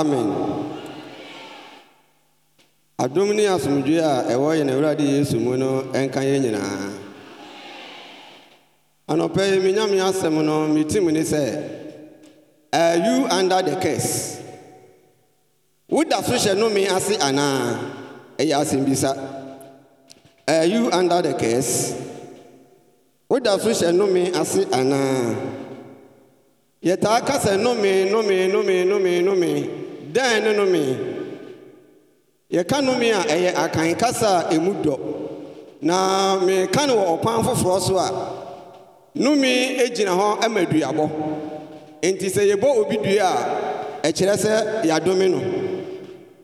amen adom ne asomdwoe a ɛwɔ yɛn awurade yesu mu no ɛnka yɛn nyinaa anɔpɛ yi menyame asɛm no metim ne sɛ are you under the curse woda so hyɛ nome ase anaa ɛyɛ asɛm bisa are you under the curse woda so hyɛ nome ase anaa yɛtaa ka sɛ nome nome nome nome nome dɛn ne nome yɛka nome a ɛyɛ akan kasa a ɛmu dɔ na meka no wɔ ɔkwan foforɔ so a nome gyina hɔ ma duabɔ Nti sɛ yɛbɔ obi dua a ɛkyerɛ sɛ yɛadome no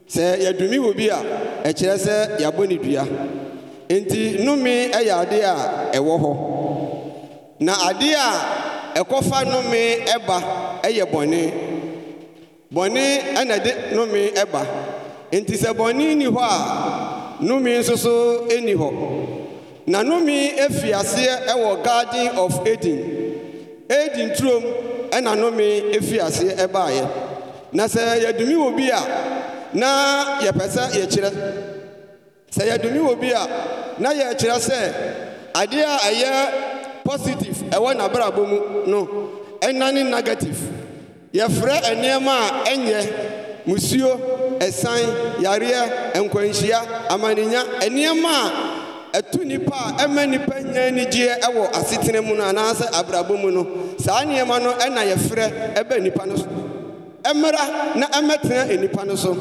sɛ yɛdome wɔ bi a ɛkyerɛ sɛ yɛabɔ ne dua Nti nome yɛ ade a ɛwɔ hɔ na ade a ɛkɔfa nome ba ɛyɛ bɔne bɔne ɛna de numi ɛba nti sɛ bɔne ni hɔ a nnome nso ɛni hɔ na numi efi aseɛ ɛwɔ garden of eden eden turom ɛna numi efi aseɛ ɛbaeɛ na sɛ yɛdumi wɔ bi a na yɛpɛ sɛ yɛkyerɛ sɛ yɛdumi wɔ bi a na yɛkyerɛ sɛ adeɛ a ɛyɛ positive ɛwɔ n'abrabɔ mu no ɛna ne negative. yɛfrɛ nnoɔma a ɛnyɛ musuo ɛsan yareɛ nkwanhyia amanenya nnoɔma a ɛtu nipa a ɛma nipa nya anigyeɛ ɛwɔ asetena mu no anaasɛ abrabɔ mu no saa nnoɔma no ɛna yɛfrɛ ɛbɛ nipa no so ɛmmra na ɛmɛtena nipa no so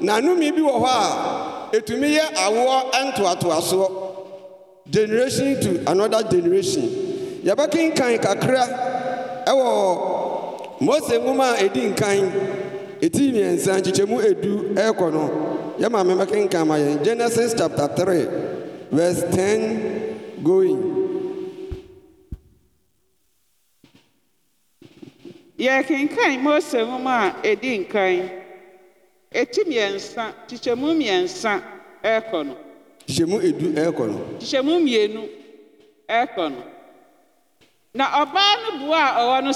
na nome bi wɔ hɔ a ɛtumi yɛ awoɔ ntoatoasoɔ generation to another generation yɛbɛkenkan kakra ɛwɔ mose nwoma a ɛdi nkan ɛti mmiɛnsa nkyekyɛmu edu ɛrekɔ no yɛ maame mɛkenkan ma yɛn genesis chapter 3 verse 10 going yɛkenkan mose nwoma a ɛdi nkan ɛti mmiɛnsa kyekyɛmu mmiɛnsa ɛrekɔ no edu ɛrekɔ no mmienu ɛrekɔ na ɔbaa no a ɔwɔ no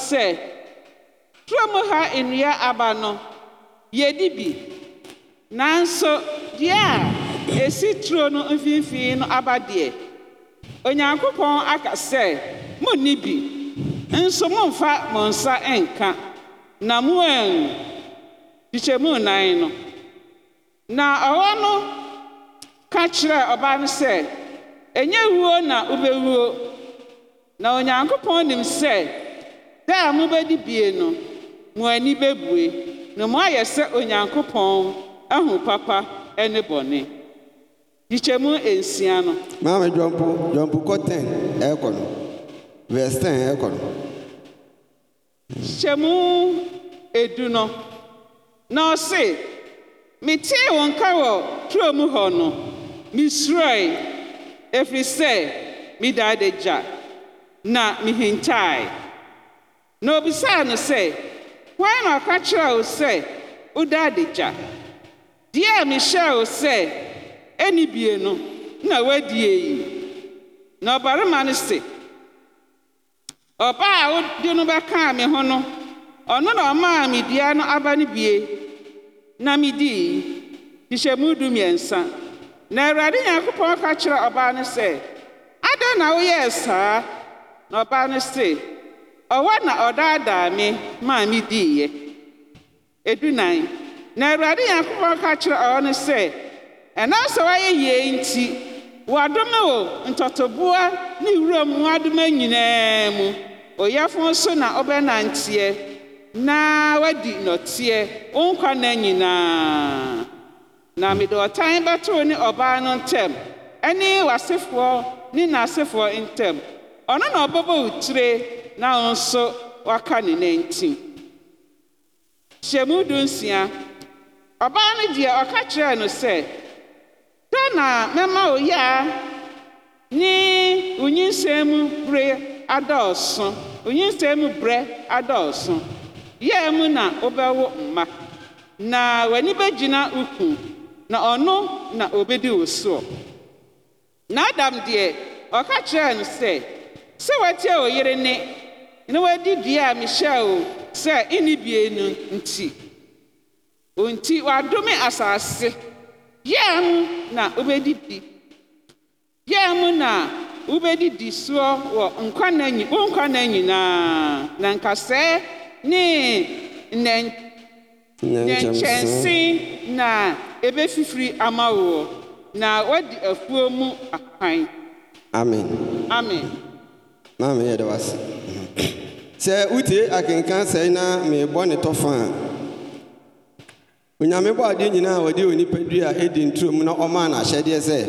kurom ha nnua aba no yɛdi bi nanso deɛ a esi turo no mfimfini no aba deɛ onyankopɔn aka sɛ n'i bi nso mommfa mo nsa nka na mo an mu nan no na ɔwɔ no ka kyerɛɛ ɔbaa no sɛ ɛnyɛ wuo na ɔbɛwuo na onyankopɔn nim sɛ da a mobɛdi bie no mo ani bɛbue na moayɛ sɛ onyankopɔn ahu papa ne bɔne gyikyɛmu nsia no maame dwɔmpo dwɔmpo kɔ 10 ɛɛkɔ no verse 10 ɛɛkɔ no gyikyɛmu edu no na ɔse metee wo nka wɔ turo mu hɔ no mesuroe ɛfiri sɛ medaa da gya na mehintae na obisaa no sɛ hwan na ɔka kyerɛ wo sɛ woda adagya deɛ a mehyɛɛ sɛ ɛni bie no na woadie yi na ɔbarima no se ɔbaa a no me ho no ɔno na ɔmaa me dua no aba no bie na du mmiɛnsa na awurade nyankopɔn ka kyerɛ ɔbaa no sɛ na saa na ɔbaa no ɔhɔ na ɔdaadaa me maa me diiɛ edunan na awurade nyankopɔn ka kyerɛ ɔwɔ no sɛ ɛnam sɛ woayɛ yie nti wɔadome o ntɔtɔboa ne wuram mmoadoma nyinaa mu ɔyɛfo nso na ɔbɛnanteɛ na wadi nnɔteɛ wo nkwa nna nyinaa na mede ɔtan bɛtoo ne ɔbaa no ntɛm ɛne w'asefoɔ ne n'asefoɔ ntɛm ɔno na ɔbɛbɔ wo tire na wo nso woaka ne nanti hyɛmu du nsia ɔbaa no deɛ ɔka kyerɛɛ no sɛ dɛ na mɛma wo yaa ne onyinsɛn mu bere adɔɔso onyinsɛn mu berɛ adɔɔso yɛɛ mu na wobɛwo mma na w'ani bɛgyina wo ku na ɔno na obɛdi wo soɔ na adam deɛ ɔka kyerɛɛ no sɛ sɛ woatie wo ne na wadi dua a mehyɛ o sɛ ɛne bie no nti ɔnti wadome asase yɛa mu na wobɛdidi yɛa mu na wobɛdidi soɔ wɔ nkwana nyi na nkwana nyinaa na nkasɛɛ ne na-ebe ɛbɛfifiri ama woɔ na woadi afuo mu akwan amen amen maame yɛde wase sɛ wotie akenka sɛe na merebɔ ne tɔfa a onyame bɔ adeɛ nyinaa a wɔde onipa dua a ɛdi nturom na ɔmaa n'ahyɛdeɛ sɛ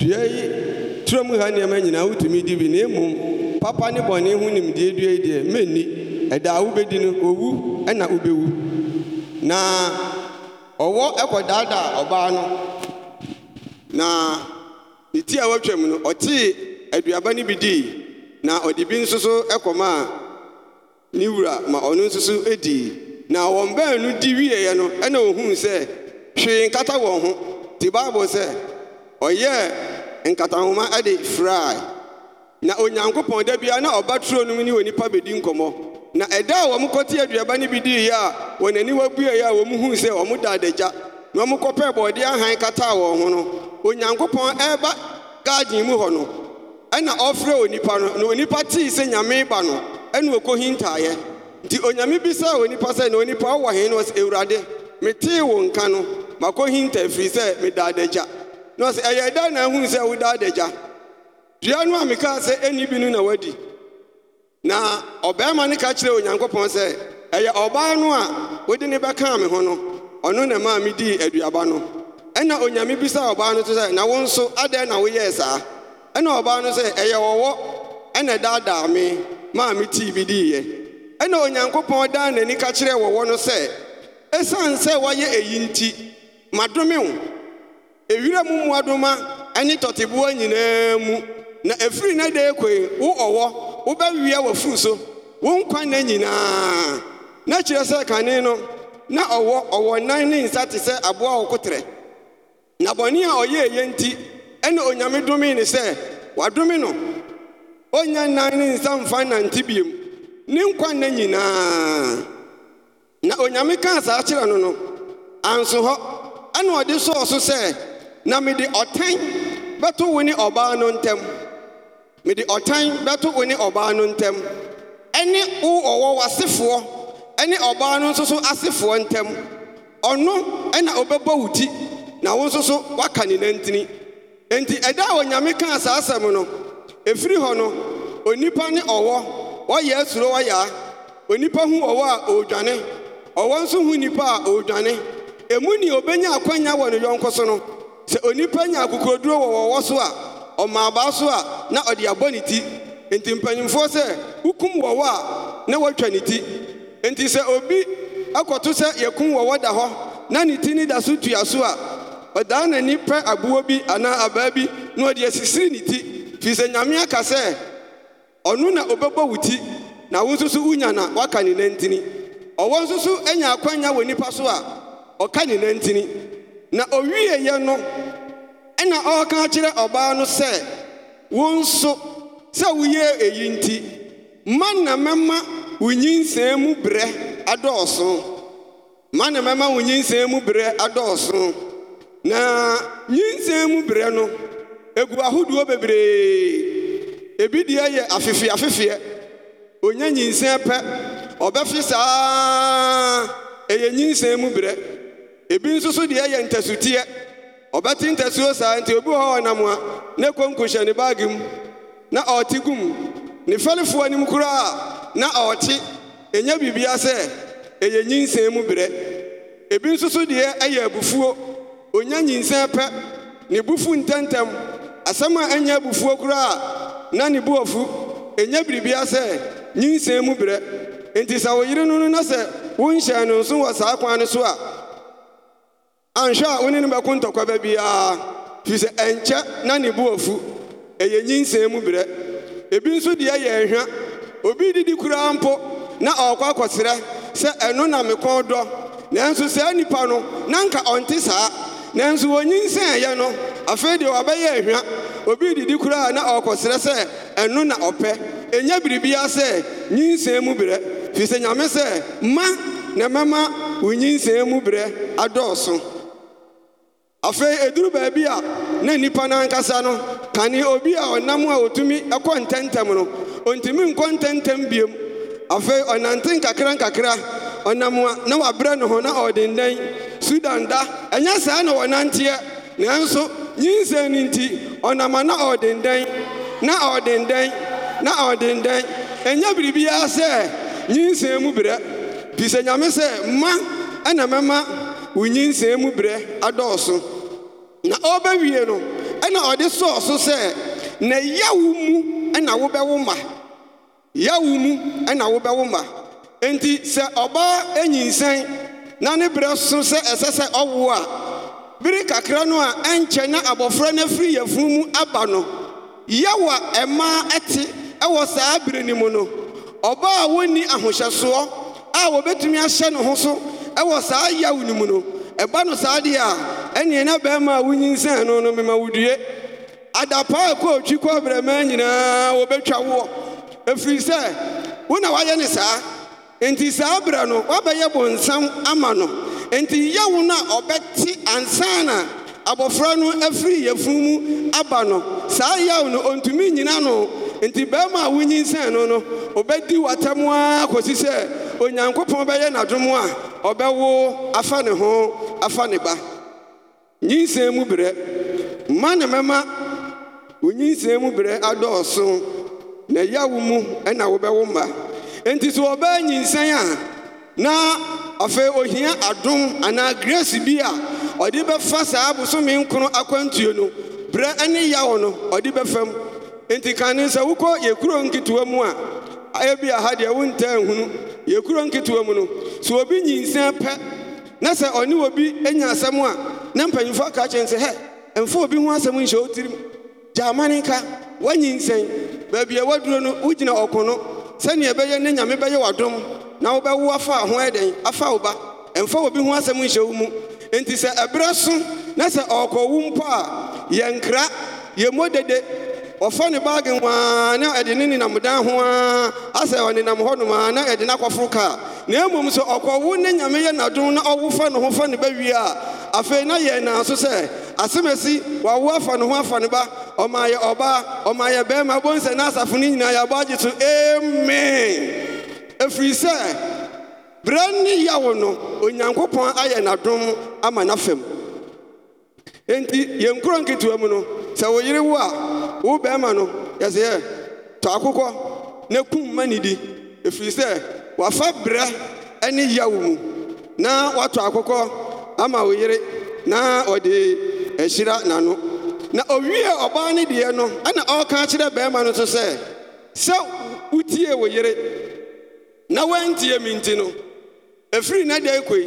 dua yi turom ha nneɛma nyinaa wotumi di bi na mmom papa ne bɔne ho nimdeɛ dua yi deɛ menni ɛda a wobɛdi no owu ɛna wobɛwu na ɔwɔ ɛkɔdaadaa ɔbaa no na ne ti a watwam no ɔtee aduaba no bi dii na ɔde bi nso so ɛkɔmaa ne wura ma ɔno nso so ɛdii na wɔn baanu di wieeɛ no ɛna ohuu sɛ hwee nkata wɔn ho te bible sɛ ɔyɛɛ nkatahoma ɛde firae na onyankopɔn da bia na ɔba turo no mu ne onipa bɛdi nkɔmmɔ na ɛda a wɔn kɔte aduaba no bi diiɛ a wɔn ani wabueeɛ a wɔn huu sɛ wɔn da adagya na wɔn kɔpɛɛ bɔɔdeɛ ahan kataa wɔn ho no onyankopɔn ɛreba garden mu hɔ no ɛna ɔfrɛ onipa no na onipa tee sɛ nyame ba no ɛna ɔkɔhintaeɛ nti onyame bi sɛ onipa sɛ na onipa ɔwɔ he no ɔsɛ awurade metee wo nka no makɔhinta firi sɛ medaa na ɔsɛ ɛyɛ ɛda na ahunu sɛ wodaa adagya dua no a mekaa sɛ ɛni bi no na wadi na ɔbarima no ka kyerɛ onyankopɔn sɛ ɛyɛ ɔbaa no a wode ne bɛkaa me ho no ɔno na ɛmaa medii aduaba no ɛna onyame bisaa ɔbaa no to sɛ na wo nso adɛn na woyɛɛ saa ɛna ɔbaa no sɛ ɛyɛ wɔwɔ ɛna daadaa me maa tii bi diiɛ ɛna onyankopɔn dan n'ani ka kyerɛɛ wɔwɔ no sɛ ɛsiane sɛ woayɛ eyi nti madome ewira mu mmoadoma ɛne tɔteboa nyinaa mu na efiri na dee koe wo ɔwɔ wobɛwia w'afuru so wo nkwa nna nyinaa na kyerɛ sɛ kane no na ɔwɔ ɔwɔ nan ne nsa te sɛ aboa wo na bɔne a ɔyɛɛ yɛ nti ɛne onyame domii ne sɛ wadome no ɔnnya nnan ne nsa mfa nante biom ne nkwa nna nyinaa na onyame kaa saa kyerɛ no no anso hɔ ɛna ɔde sɔɔ so sɛ na mede ɔtan bɛto wo ne ɔbaa no ntɛm mede ɔtan bɛto wo ne ɔbaa no ntɛm ɛne wo ɔwɔ w'asefoɔ ɛne ɔbaa no nso so asefoɔ ntɛm ɔno ɛna ɔbɛbɔ wo ti na wo nso so woaka ne nantini enti ɛda a onyame kaa saa asɛm no ɛfiri hɔ no onipa ne ɔwɔ wɔyɛ asuro wɔyaa onipa hu ɔwɔ a ɔredwane ɔwɔ nso hu nipa a ɔredwane ɛmu ne obɛnya akwanya wɔ ne yɔnko so no sɛ onipa nya akokoroduro wɔ wɔwɔ so a ɔmaa baa so a na ɔde abɔ ne ti nti mpanyinfoɔ sɛ wokum wɔwɔ a na woatwa ne ti nti sɛ obi akɔto sɛ yɛkum wɔwɔ da hɔ na ne ti ne da so tua so a ɔdaa n'ani pɛ aboɔ bi anaa abaa bi na ɔde asisiri ne ti firi sɛ nyame aka sɛ ɔno na ɔbɛbɔ wo ti na wo nso so wonya na woaka ne nantini ɔwɔ nso so anya akwanya wɔ nnipa so a ɔka ne nantini na ɔwieyɛ no ɛna ɔreka kyerɛ ɔbaa no sɛ wo nso sɛ woyɛɛ eyi nti ma na mɛma wo nyinsɛn mu berɛ adɔɔso ma na mɛma wo nyinsɛn mu berɛ adɔɔso na nyinsɛn mu berɛ no egu ahodoɔ bebree ebi deɛ yɛ afefeɛ afefeɛ onya nyinsɛn pɛ ɔbɛfe saa ɛyɛ nyinsɛn mu berɛ ebi nso so deɛ yɛ ntɛsoteɛ ɔbɛte ntɛsoɔ saa nti obi hɔ ɔnam a ne konko hyɛ ne baage mu na ɔte gum ne fɛlefoɔ anim koraa na ɔte ɛnya biribia sɛ ɛyɛ nyinsɛn mu berɛ ebi nso so deɛ ɛyɛ abufuo onya nyinsɛn pɛ ne bufu ntɛmtɛm asɛm a ɛnyɛ abufuo koraa na ne bu ɔfu ɛnyɛ biribia sɛ nyinsɛn mu berɛ enti sɛ wo yere no no na sɛ wonhyɛn no nso wɔ saa kwan no so a anhwɛ a wo ne no bɛko ntɔkwaba biara firi sɛ ɛnkyɛ na ne bu ɔfu ɛyɛ nyinsɛn mu berɛ ebi nso deɛ yɛ nhwa obi didi koraa mpo na ɔrekɔ akɔserɛ sɛ ɛno na me dɔ nanso saa nnipa no na nka ɔnte saa nanso wɔnyinsɛn yɛ no afei deɛ wɔabɛyɛ ahwa obi didi koraa na ɔrekɔsrɛ sɛ ɛno na ɔpɛ ɛnya biribiara sɛ nyinsɛn mu berɛ firi sɛ nyame sɛ ma na mɛma wo nyinsɛn mu berɛ adɔɔso afei ɛduru baabi a na nnipa no ankasa no kane obi a ɔnam a ɔtumi ɛkɔ ntɛmtɛm no ɔntumi nkɔ ntɛmtɛm biom afei ɔnante nkakra nkakra ɔnam a na wabrɛ ne ho na ɔdendan sudan da ɛnyɛ saa na wɔnanteɛ nanso nyinsɛn no nti ɔnama na ɔdendɛn na ɔdendɛn na ɔdendɛn ɛnyɛ biribiara sɛ nyinsɛn mu berɛ fi sɛ nyame sɛ mma ɛna mɛma wo nyinsɛn mu berɛ adɔɔso na ɔbɛwie no ɛna ɔde sɔɔ so sɛ na yawo mu ɛna wobɛwo ma yawo mu ɛna wobɛwo ma enti sɛ ɔbaa anyinsɛn na ne berɛ so sɛ ɛsɛ sɛ ɔwo a biri kakra no a ɛnkyɛ na abɔfra no afiri yafunu mu aba no yɛwɔ a ɛmaa ɛte ɛwɔ saa bere no mu no ɔbaa a wɔnni ahohyɛsoɔ a wɔbɛtumi ahyɛ ne ho so ɛwɔ saa yaw no mu no ɛba no saa deɛ a ɛneɛ na bɛrima a wonyinsɛn no no mema wodue adapa a ɛkɔɔtwi kɔbrɛmaa nyinaa wɔbɛtwa woɔ ɛfiri sɛ wo na woayɛ ne saa nti saa berɛ no woabɛyɛ bonsam ama no nti yawu na a ɔbɛte ansa na abɔfra no efiri yɛfunu mu aba no saa yawu no ɔntumi nyina no enti barima a wonyinsɛn no no ɔbɛdi w'atam ara kɔsi sɛ onyankopɔn bɛyɛ n'adom a ɔbɛwo afa ne ho afa ne ba nyinsɛn mu berɛ mma na mɛma onyi nyinsɛn mu berɛ adɔɔso na yawu mu na ɛna wobɛwo mma nti sɛ ɔbaa nyinsɛn a na afei ohia adom anaa grace bi a ɔde bɛfa saa bosome nkono akwantuo no berɛ ne yawo no ɔde bɛfam enti kane sɛ wokɔ yɛkuro nketewa mu a ɛbi aha deɛ wontaa nhunu yɛkuro nketewa mu no sɛ obi nyinsɛn pɛ na sɛ ɔne obi anya asɛm a na mpanyimfoɔ aka kyerɛ sɛ hɛ ɛmfa obi ho asɛm nhyɛ wo tirim gyaamane ka woanyinsɛn baabi a woaduro no wogyina ɔko no sani ɛbɛyɛ ne nyame bɛyɛ w'adom na wobɛwo afa ho ɛdɛn afa wo ba ɛmfa obi ho asɛm nhyɛ wo mu enti sɛ ɛberɛ so na sɛ ɔrekɔwo mpo a yɛnkra yɛmmɔ dede ɔfa ne baage waa na ɛde ne nenam dan ho ara asɛ ɔnenam hɔnom a na ɛde no akɔforo kaa na mmom sɛ ɔkɔwo ne nyame yɛ n'adom na ɔwo fa ne ho fa ne bɛwie a afei na yɛn naa so sɛ asɛm asi wawo afa ne ho afa ne ba ɔma yɛ ɔbaa ɔma yɛ bɛrima bɔn sɛ n'asafo no nyinaa yɛabɔ agye so amen ɛfiri sɛ berɛ ne yawo no onyankopɔn ayɛ n'adom ama n'afam enti yɛn kuro nketewa mu no sɛ wo yere wo a wo bɛrima no yɛsɛ yɛ tɔ akokɔ na kum ma ne di ɛfiri sɛ wafa berɛ ne yawo mu na watɔ akokɔ ama wo yere na ɔde ɛhyira n'ano na owie ɔbaa ne deɛ no ɛna ɔka kyerɛ barima no so sɛ sɛ wotie wo yere na woantiɛ mi nti no ɛfiri na dakoi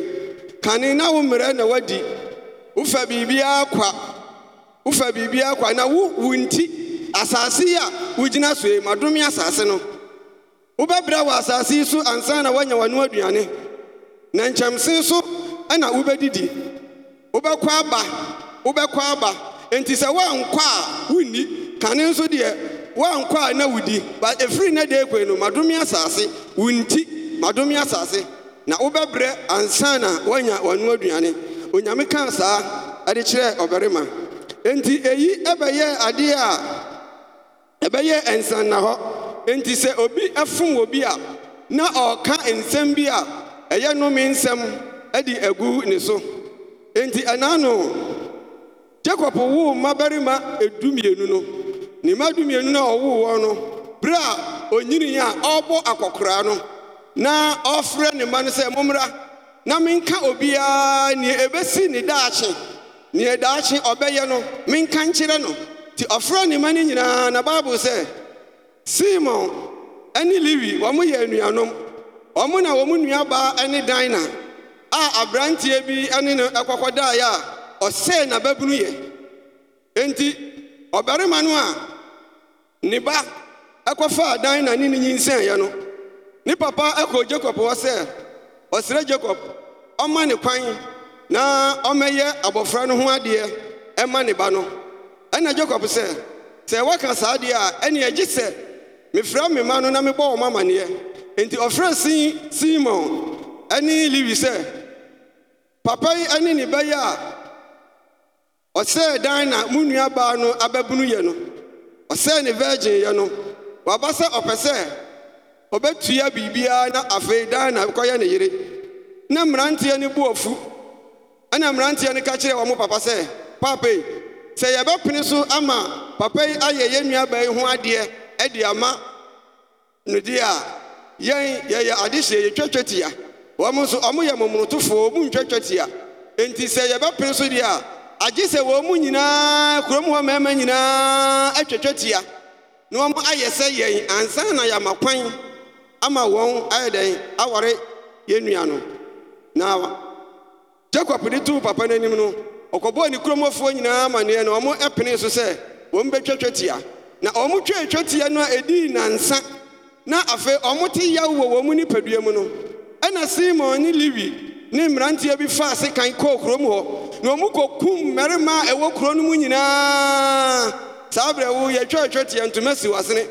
kane na wo mmerɛ na woadi wofa biribiara kwa wofa biribiara kwa na wo wonti asase yi a wogyina soe madome asaase no wobɛbrɛ wo asase yi so ansa na woanya w'ano aduane na nkyɛmsen nso ɛna wobɛdidi wobɛkɔ aba wobɛkɔ aba enti sɛ woankɔ a wonni kane nso deɛ woankɔ a na wodi but ɛfiri nɛ deɛ kwei no madome asase wo nti madome asase na wobɛbrɛ ansa na woanya w'ano aduane onyame kaa saa ɛde kyerɛɛ ɔbarima enti eyi ɛbɛyɛ adeɛ a ɛbɛyɛ na hɔ enti sɛ obi ɛfom wɔ bi a na ɔreka nsɛm bi a ɛyɛ nome nsɛm ɛde agu ne so enti ɛnaa no jakob woo mmabarima mmienu no ne mma mmienu no a ɔwoo wɔn no bere a onyini a ɔrebɔ akɔkoraa no na ɔfrɛ ne mma no sɛ mommra na menka obiara nea ɛbɛsi ne daakye nea daakye ɔbɛyɛ no menka nkyerɛ no nti ɔfrɛ ne mma no nyinaa na bible sɛ simon ne lewi wɔmoyɛ anuanom ɔmo na wɔn nuabaa ne dina a aberanteɛ bi ne no ɛkɔkɔdaeɛ a ɔsɛe n'ababunu yɛ enti ɔbarima no a ne ba ɛkɔfaa dan na ne ne nyinsɛneeɛ no ne papa ɛkɔɔ Jacob hɔ sɛ ɔsrɛ jakob ɔma ne kwan na ɔmɛyɛ abɔfra no ho adeɛ ɛma ne ba no Ɛna Jacob sɛ sɛ woaka saa deɛ a ɛne agye sɛ mefrɛ me ma no na mebɔ wɔ ma amanneɛ enti ɔfrɛ sin simon ɛne lewi sɛ papa yi ɛne ne bɛyɛ a Ọsẹ dan na mo nuabaa no abɛbunu yɛ no ɔsɛe ne virgin yɛ no waba sɛ ɔpɛ sɛ ɔbɛtua biribiara na afei dan na kɔyɛ ne yere na mmeranteɛ no bu ɔfu ɛna mmeranteɛ no ka kyerɛ wɔn papa sɛ papa yi sɛ yɛbɛpene so ama papa yi ayɛ yɛn nuabaa yi ho adeɛ ɛde ama no deɛ a yɛn yɛyɛ adehyɛ yɛtwatwa tia wɔn nso wɔn yɛ momonotofoɔ wɔn mu tia nti sɛ yɛbɛpene so deɛ a agye sɛ wɔn mu nyinaa kurom hɔ mmarima nyinaa atwatwa tia na wɔn ayɛ sɛ yɛn ansa na yɛama kwan ama wɔn ayɛ dɛn aware yɛn nua no na jacob de tuu papa n'anim no ɔkɔbɔɔ ne kuromfoɔ nyinaa amaneɛ na wɔn pene so sɛ wɔn bɛtwatwa tia na wɔn twatwa tia no a ɛdii nansa na afei wɔn te yaw wɔ wɔn nipadua mu no ɛna simon ne lewi ne mmeranteɛ bi fa ase kan kɔɔ kurom hɔ. na ɔmu kɔkum mmarima a ɛwɔ kuro no mu nyinaa saa berɛ wo yɛtwɛtwɛ teɛ ntoma si wasene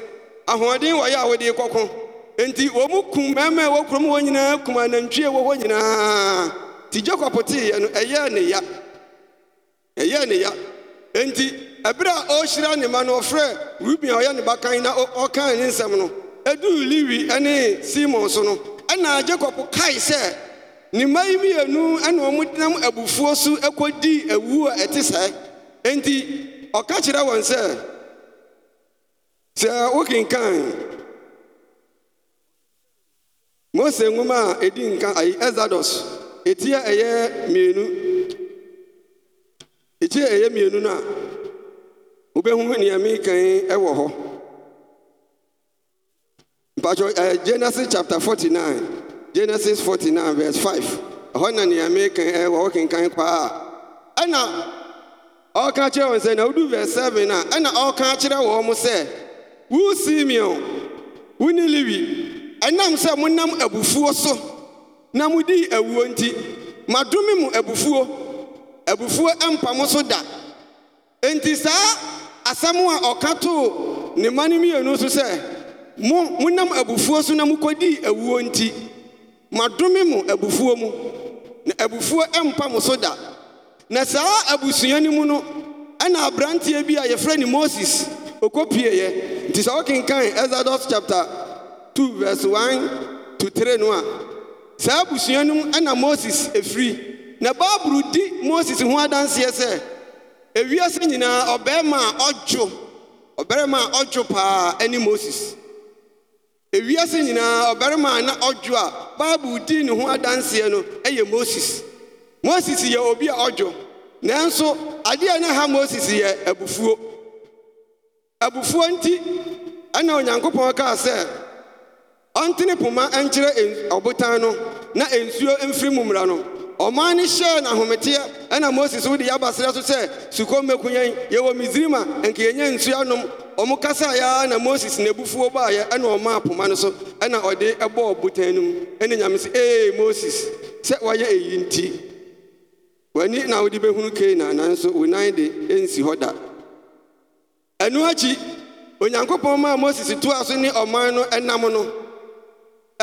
ahoɔden wɔyɛ a wode kɔko enti ɔmu kum mmarima a ɛwɔ kuro mu hɔ nyinaa kum anantwie wɔ hɔ nyinaa nti jakob teeɛ no ɛyɛɛ ne ya ɛyɛɛ ne ya nti ɛberɛ a ɔrehyira ne ma no ɔfrɛ ruben a ɔyɛ ne bakan na ɔkaa ne nsɛm no edu lewi ne simon so no ɛna jakob kae sɛ ne mma yi mmienu na wɔnam abufuo so kɔdi awu a ɛte sɛe enti ɔka kyerɛ wɔn sɛ sɛ wokenkan mose nwoma a ɛdi nka ayi exodus ɛti a ɛyɛ mmienu ɛti a ɛyɛ mmienu no a wobɛhu nea mekan wɔ hɔ mpakyɛ genesis chapter 49 genesis 49 vers 5i ɛhɔ na neɛme eh, wawo kenkan kwaa a ɛna ɔɔka akyerɛ wɔ sɛ nawoduu virs 7 a ɛna ɔrɔka akyerɛ wɔ mo sɛ wu simeon wu ne lewi ɛnam sɛ monam abufuo so na modii awuo nti madome mo abufuo abufuo mpa mo so da enti saa asɛm a ɔka too ne ma nomenu so sɛ omonam abufuo so na mokɔdii awuo nti madome mu abufuo mu na abufuo mpa mo so da na saa abusua no mu no ɛna aberanteɛ bi a yɛfrɛ ne moses ɔkɔpieeɛ nti sɛ wokenkan exodus chapter 2 verse 1 to 3 no a saa abusua no mu ɛna moses ɛfiri na bible di moses ho adanseɛ sɛ ewiase nyinaa ɔbarima a ɔdwo ɔbarima a ɔdwo paa ɛne moses ewiase nyinaa ɔbarima a na ɔdwo a baabul dii ne ho adanseɛ no ɛyɛ moses moses yɛ obi a ɔdwo nanso adeɛ na ha moses yɛ abufuo abufuo nti ɛna onyankopɔn kaa sɛ ɔntene poma nkyerɛ ɔbotan no na nsuo mfiri mu mmara no ɔman no hyɛɛ nahometeɛ ɛna moses wode yɛabasrɛ so sɛ sukom mɛkuyɛn yɛwɔ misirim a ɛnka yɛnya nsuanom ɔmo kasa yɛa na moses n'bufuɔ baayɛ ɛna ɔmaa poma no so ɛna ɔde ɛbɔɔ botan no mu ɛne nyame sɛ ee moses sɛ wayɛ ɛyi nti wani na wode bɛhunu kana nanso wonan de ɛnsi hɔ da ɛno akyi onyankopɔn maa moses toa so ne ɔman no ɛnam no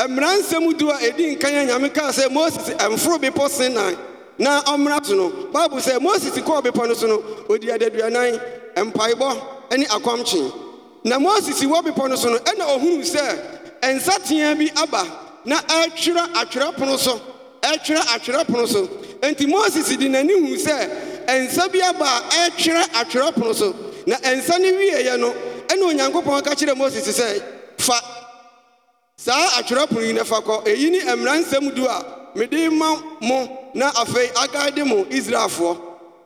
mmeransɛm du a ɛdi nkan a nyame kaa sɛ moses mforo bepɔ senan na ɔmmra so no bible sɛ moses kɔɔ bepɔ no so no ɔdi adaduanan mpaebɔ ne akwamkye na moses wɔ bepɔ no so no ɛna ɔhunuu sɛ nsateaa bi aba na ɛtwerɛ atwerɛ pono so ɛtwerɛ atwerɛ pono so enti moses de n'ani huu sɛ nsa bi aba a ɛtwerɛ atwerɛ so na nsa no wieeɛ no ɛna onyankopɔn ka kyerɛ moses sɛ fa saa atwerɛpono yi nafa kɔ eyi ne mmara nsɛm du a mede ma mo na afei agaade mo israelfoɔ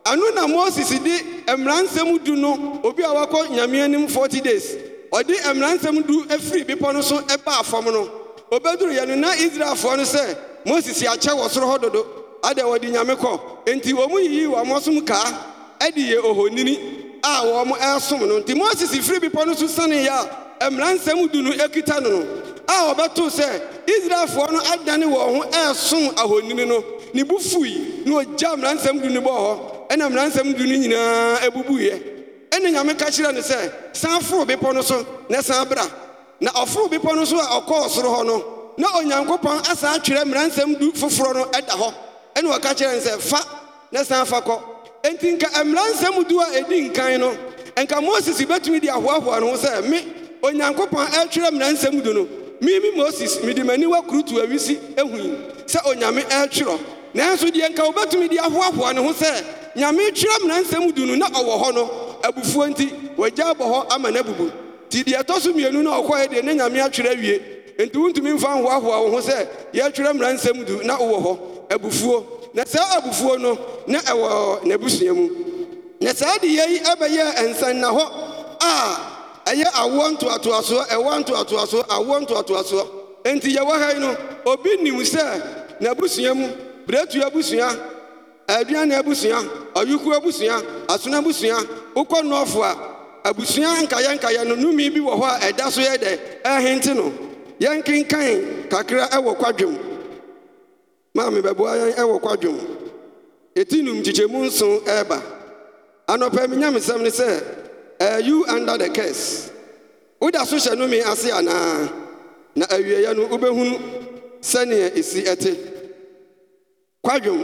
ɛno na moses di mmara nsɛm du no obi a wakɔ nyame anim 40 days ɔde mmara nsɛm du efiri bepɔ no so ɛbaa fam no obɛduruiɛ no na israelfoɔ no sɛ moses akyɛ wɔ soro hɔ dodo ada wɔde nyame kɔ enti wɔn mu yiyii wɔn asom kaa ɛde yɛ ohonini a wɔn ɛresom no nti moses firi bepɔ no so saneeɛ a mmara nsɛm du no ekita no no a ɔbɛtoo sɛ israelfoɔ no adane wɔn ho ɛreso ahoni no ne bu fui na ɔgya mmaransɛm du no bɔɔ hɔ ɛna mmaransɛm du no nyinaa abubuiɛ ɛna nyame ka kyerɛ no sɛ san foro bepɔ no so na san bra na ɔforo bepɔ no so a ɔkɔɔ soro hɔ no na onyankopɔn asan atwerɛ mmaransɛm du foforɔ no ɛda hɔ ɛna ɔka kyerɛ no sɛ fa na san fa kɔ enti nka mmaransɛm du a ɛdi nkan no nka moses bɛtumi ahoahoa no ho sɛ me onyankopɔn du no mimi moses mede m'ani wakurutu awisi ahui sɛ onyame ɛretwerɛ nanso deɛ nka wobɛtumi de ahoahoa ne ho sɛ nyame twerɛ mmeransɛm du no na ɔwɔ hɔ no abufuo nti wɔagya abɔ hɔ ama no abubu nti deɛ ɛtɔ so mmienu no ɔkɔɛ deɛ ne nyame atwerɛ awie nti wontumi mfa nhoahoa wo ho sɛ yɛatwerɛ mmeransɛm du na wowɔ hɔ abufuo na saa abufuo no na ɛwɔ n'abusua mu na saa de yɛi ɛbɛyɛ ɛnsanna hɔ a ɛyɛ awoɔ ntoatoasoɔ ɛwɔ ntoatoasoɔ awoɔ ntoatoasoɔ enti yɛwɔ ha yi no obi nim sɛ n'abusua mu biretu abusua aduane abusua ɔyuku abusua asono abusua wokɔ nɔɔfo a abusua nkayɛnkayɛ no numi bi wɔ hɔ a ɛda so yɛ dɛ ɛhente no yɛnkenkan kakra ɛwɔ kwadwom maame bɛboa yɛn ɛwɔ kwadwom ɛti num kyikyɛmu nson ɛreba anɔpɛ menyamesɛm ne sɛ Eh, you under the curse woda so hyɛ nome ase anaa na awieeɛ no wobɛhunu sɛnea ɛsi ɛte kwadwom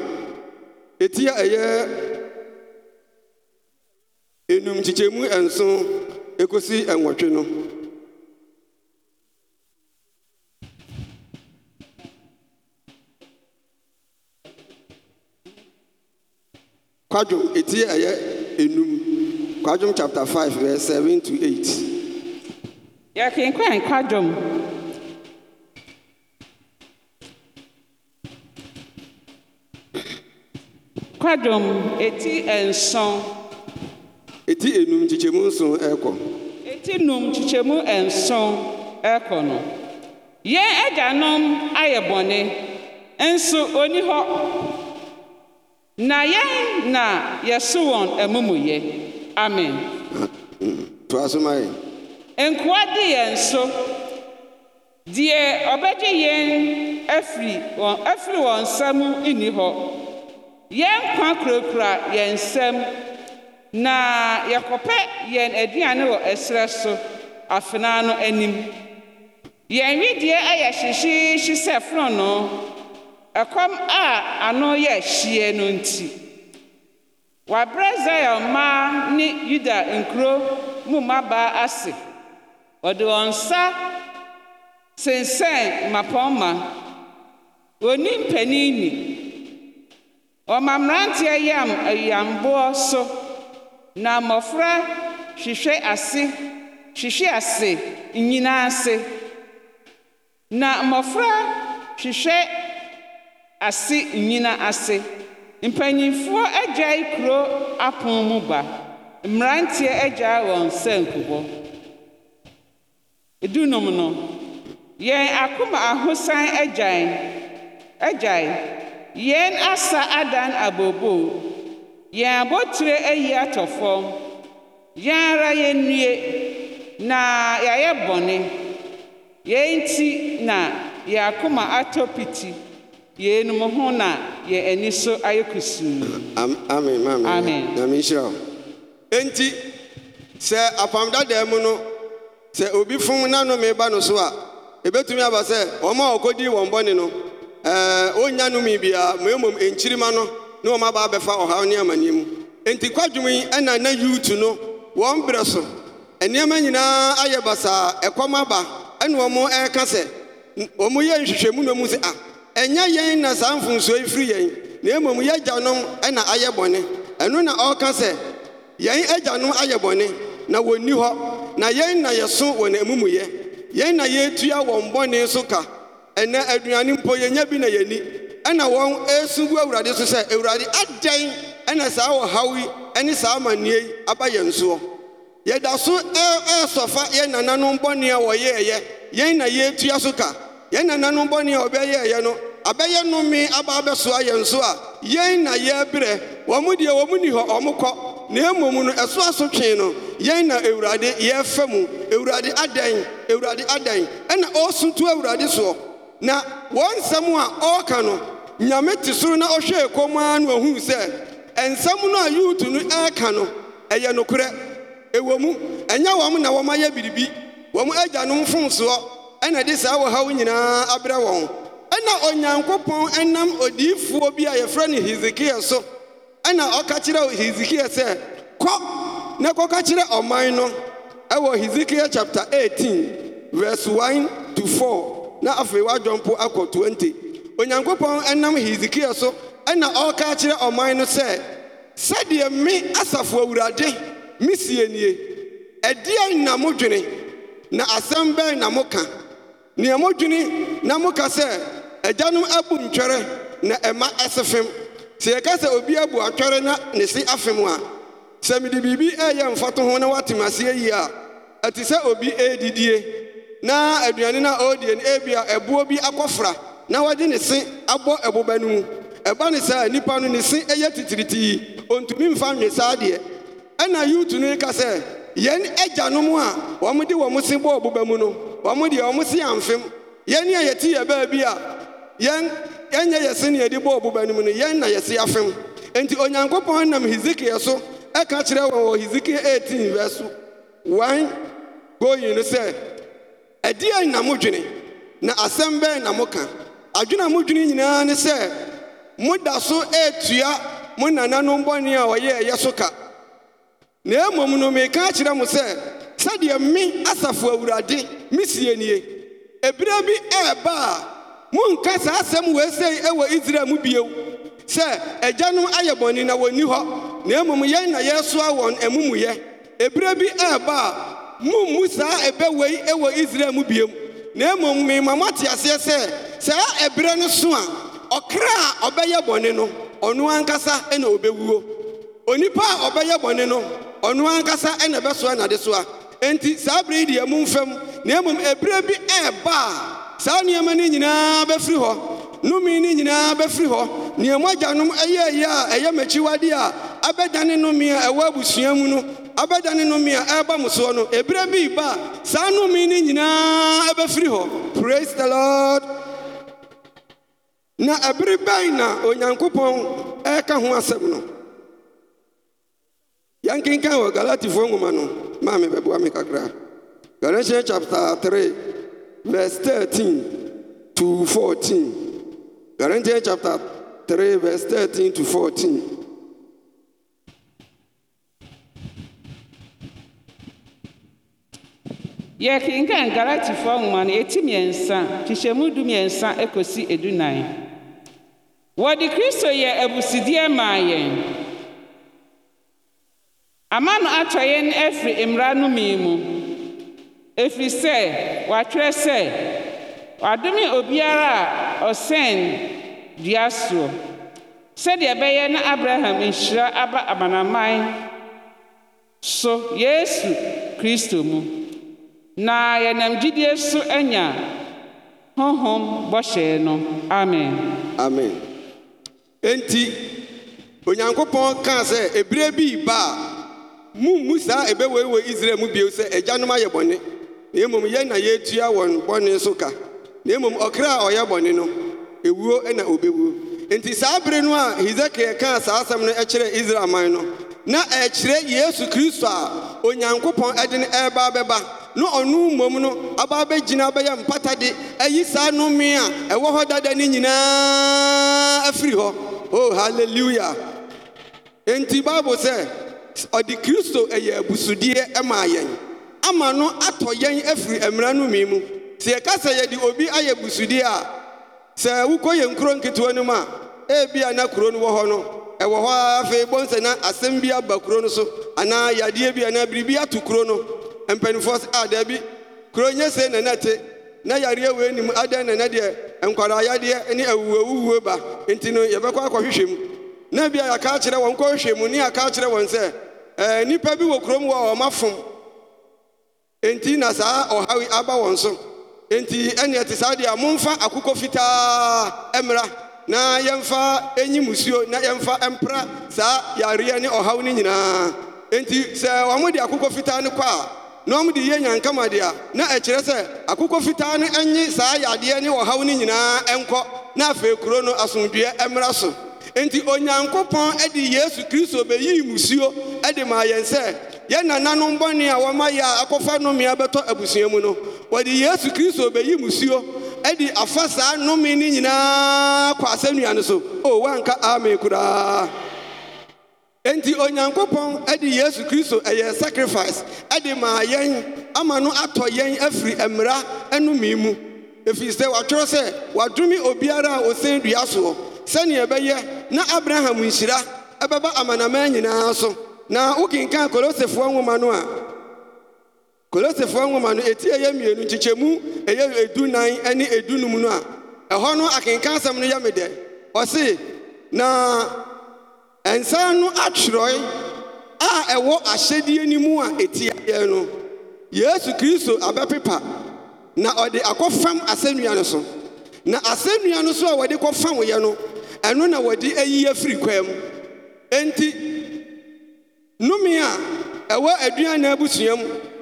ɛti a ɛyɛ enum kyikyɛmu ɛnso ɛkɔsi ɛnwɔtwe no kwadwom ɛti a ɛyɛ enum kwadwom chapter 5 verse 7 to 8 yɛkenkan kwadwom kwadwom eti nson eti enum kyikyɛmu nson eti num kyikyɛmu nson ɛrekɔ no yɛn agyanom ayɛ nso oni na yɛn na yɛso wɔn amumuyɛ amen toa nkoa di yɛn so deɛ ɔbɛgye yɛn afiri wɔn afiri wɔn nsam nni hɔ yɛn kwa kurakura yɛn nsam na yɛkɔpɛ yɛn aduane wɔ ɛserɛ so afenaa no anim yɛn wedeɛ ayɛ hyehyeehye sɛ fononoo ɛkɔm a ano yɛ hyie no nti Wɔabrɛ Zion mmaa ne Yuda nkuro mu mmabaa ase. Wɔde wɔn nsa sensɛn mmapɔmma. Wɔnni mpanin ni. Wɔma mmeranteɛ yam ayuamboɔ so, na mmɔfra hwehwɛ ase hwehwe ase nyinaa ase. Na mmɔfra hwehwɛ ase nyina ase. Mpanyinfoɔ agya kuro apon mu ba. Mmeranteɛ agya wɔn sanku hɔ. Dunum no, yɛn akoma ahosan agya agyae. Yɛn asa adan abooboo. Yɛn abotire ayi atɔ fam. Yɛn ara yɛn yɛnnue na yɛayɛ bɔne. Yɛn ti na yɛn akoma atɔ piti. Yeinom ho na yɛn ani so ayɛ kusuu amen Ami. na menhyira wo enti sɛ apam dadaa mu no sɛ obi fom nanome ba no so a ebetumi aba sɛ wɔma a wɔkɔdii wɔn bɔne no ɔnnya nome biara ma mmom ɛnkyirima no ne wɔma aba abɛfa ɔhaw ne amanneɛ mu enti kwadwom yi ɛna na yuutu no wɔn berɛ so nneɛma nyinaa ayɛ basaa ɛkɔm aba ɛne wɔn ɛreka sɛ wɔn yɛ nhwehwɛmu na mu sɛ a ah, ɛnyɛ yɛn na saa mfomsoɔ yi firi yɛn na mmom yɛagyanom ɛna ayɛ bɔne ɛno na ɔka sɛ yɛn agyanom ayɛ bɔne na wɔnni hɔ na yɛn na yɛso wɔ n'amumuyɛ yɛn na yɛtua wɔn bɔne nso ka ɛnɛ aduane mpo yɛnya bi na yɛni ɛna wɔn esu gu awurade so sɛ awurade adɛn ɛna saa ɔhaw yi ne saa amanneɛ yi aba yɛn soɔ yɛda so ɛsɔfa yɛn nananom bɔne a wɔyɛɛyɛ yɛn na yɛtua so ka yɛn nananom bɔne a ɔbɛyɛɛyɛ no abɛyɛ nome aba abɛsoa yɛn so a yɛn na yɛrebrɛ wɔn mu deɛ wɔn mu nni hɔ ɔmo kɔ na mu no ɛso aso twen no yɛn na ewurade yɛrefa mu ewurade adan ewurade adan ɛna ɔresuntu ewurade soɔ na wɔn nsɛm a ɔreka no nyame te soro na ɔhwɛɛ kɔm ara na ɔhuu sɛ nsɛm no a yuutu no ɛreka no ɛyɛ nokorɛ ɛwɔ mu ɛnyɛ wɔn na wɔn ayɛ biribi wɔn no fom soɔ ɛna ɛde saa wɔhaw nyinaa abrɛ wɔn ɛna onyankopɔn nam odiyifoɔ bi a yɛfrɛ no hesekia so ɛna ɔka kyerɛ hesekia sɛ kɔ na kɔka kyerɛ ɔman no ɛwɔ hesekia chapter 18 verse 1 to 4 na afei wadwɔmpo akɔ 20 onyankopɔn nam hesekia so ɛna ɔreka kyerɛ ɔman no sɛ sɛdeɛ me asafo awurade mesie nie ɛdeɛn na modwene na asɛm bɛn na moka nea modwini na moka sɛ agyanom abu ntwɛrɛ na ɛma ɛse fem sɛ yɛka sɛ obi abu atwɛre na ne se afem a sɛ mede biribi ɛyɛ mfato ho na woatem aseɛ yie a ɛte sɛ obi ɛredidie na aduane no a ɔredie no ebia ɛboɔ bi akɔfra na wɔde ne se abɔ ɛboba no mu ɛba ne saa nnipa no ne se ɛyɛ titiritii ɔntumi mfa nwe saa deɛ ɛna yiwtu no ka sɛ yɛn agyanom a wɔmde wɔn se bɔɔ boba mu no wɔmde wɔn se amfem yɛn a yɛte yɛ baabi a yɛn yɛnyɛ yɛ se yɛde bɔɔ no mu no yɛn na yɛse afem enti onyankopɔn nam hezekiel ɛka kyerɛ wɔn wɔ hezekiel verse no sɛ na modwene na asɛm na adwene a nyinaa ne sɛ so mo nananom a ɛyɛ so ka na mmom no meka kyerɛ mo sɛ sɛdeɛ me asafo awurade mesie nie ebire bi ɛɛba a monka saa asɛm wɔesei ɛwɔ israel mu bio sɛ agyanom ayɛ bɔne na wɔnni hɔ na mmom yɛn na yɛresoa wɔn amumuyɛ ebire bi ɛɛba a mummu saa ɛbɛwei ɛwɔ israel mu bio na mmom mema moate aseɛ sɛ saa ɛberɛ no so a ɔkra a ɔbɛyɛ bɔne no ɔno ankasa ɛna ɔbɛwuo onipa a ɔbɛyɛ bɔne no ɔno ankasa ɛna ɛbɛsoa nade so a enti saa bere yi deɛ mu mfam na emu ɛberɛ bi ɛɛba saa nneɛma no nyinaa bɛfiri hɔ nomi no nyinaa bɛfiri hɔ Nneɛma mo agyanom ɛyɛ yɛ a ɛyɛ m'akyiwade a abɛdane nomi a ɛwɔ abusua mu no abɛdane nomi a ɛreba mo soɔ no ɛberɛ bi ba saa nomi no nyinaa ɛbɛfiri hɔ praise the lord na ɛbere bɛn na onyankopɔn ɛreka ho asɛm no Ya nkịnka ahụ Galatifoɔ nwoma no maa me bɛboa me kakra. Galatians chapter three verse thirteen to fourteen. Galatians chapter three verse thirteen to fourteen. yɛkenkan galatifoɔ nwoma no ɛti mmiɛnsa kyehyɛmu du mmiɛnsa ɛkɔsi edunan wɔde kristo yɛ abusideɛ maa yɛn amano atɔ yɛn afiri mmara no mi mu ɛfiri sɛ wɔatwerɛ sɛ wɔadome obiara a ɔsɛn dua soɔ sɛdeɛ ɛbɛyɛ na abraham nhyira aba amanaman so yesu kristo mu na yɛnam gyidie so anya honhom bɔhyɛe no amen amen enti onyankopɔn kaa sɛ ɛberɛ bi ba a mummu saa ebe ɛbɛweiwei israel mu bio sɛ agyanom ayɛ bɔne na mmom yɛn na ya wọn bɔne so ka na mmom ɔkra a ɔyɛ bɔne no Ewuo na obɛwuo Nti saa bere no a hesekiel kaa saa asam no ɛkyerɛɛ israel man no na ɛkyerɛ yesu kristo a onyankopɔn ɛde no ɛreba bɛba na ɔno mmom no aba bɛgyina bɛyɛ mpatade ayi saa nome a ɛwɔ hɔ dada no nyinaa afiri hɔ o oh, halleluya enti bible sɛ ɔde kristo ɛyɛ abusudeɛ ɛmaa yɛn ama no atɔ yɛn afiri mmara no mi mu sɛ yɛka sɛ yɛde obi ayɛ busudeɛ a sɛ wokɔyɛ nkuro nketewa ano m a ebia na kuro no wɔ hɔ no ɛwɔ hɔ a afei bɔnsɛna asɛm bi aba kuro no so anaa yadeɛ bi anaa biribi ato kuro no mpanimfoɔ s a daa bi kuro nyɛsee nɛnɛ ɛte na yareɛ we nim adɛn nɛnɛ deɛ nkwaraayadeɛ ne ɛwuwawuwue ba enti no yɛbɛkɔ akɔhwehwɛ mu na bia yɛaka kyerɛ wɔn kɔhwehwɛ mu ne aka kyerɛ wɔn sɛ nnipa eh, bi wɔ kurom wɔ a ɔmafom nti na saa ɔhaw aba wɔn so nti ɛneɛ te saa deɛ a momfa akokɔ fitaa ɛmmra na yɛmfa enyi musuo na yɛmfa ɛmpra saa yareɛ ne ɔhaw no nyinaa enti sɛ wɔmode akokɔ fitaa no kɔ a na wɔmde yɛ nyankama deɛ na ɛkyerɛ sɛ akokɔ fitaa no ɛnye saa yadeɛ ne ɔhaw no nyinaa nkɔ na afei kuro no asomdua ɛmmra so nti onyankopɔn de yesu kristo bɛyii musuo de maa yɛn sɛ yɛn nananom bɔne a wɔma yɛ a akɔfa nnome abɛtɔ abusua mu no wɔde yesu kristo bɛyi musuo de afa saa nnome no nyinaa kɔ asɛnnua no so o woanka amen koraa nti onyankopɔn de yesu kristo ɛyɛ sacrifice de maa yɛn ama no atɔ yɛn afiri mmara nome mu efi sɛ wɔatwerɛ sɛ wɔadome obiara a ɔsɛn dua soɔ sɛnea ɛbɛyɛ na abraham nhyira ɛbɛba amanaman nyinaa so na wokenkan kolosefoɔ nwoma no a kolosefoɔ nwoma no eti ɛyɛ mmienu nkyekyɛmu ɛyɛ edunan ne edunum no a ɛhɔ no akenkan asɛm no yɛ me dɛ ɔse na nsa no atwerɛ a ɛwɔ ahyɛdeɛ no mu a eti ɛtiaeɛ no yesu kristo abɛpepa na ɔde akɔfam asɛnnua no so na asɛnnua no so a wɔde kɔfam yɛ no ɛno na wɔde ayi afiri kwaam enti nome a ɛwɔ aduana abusuam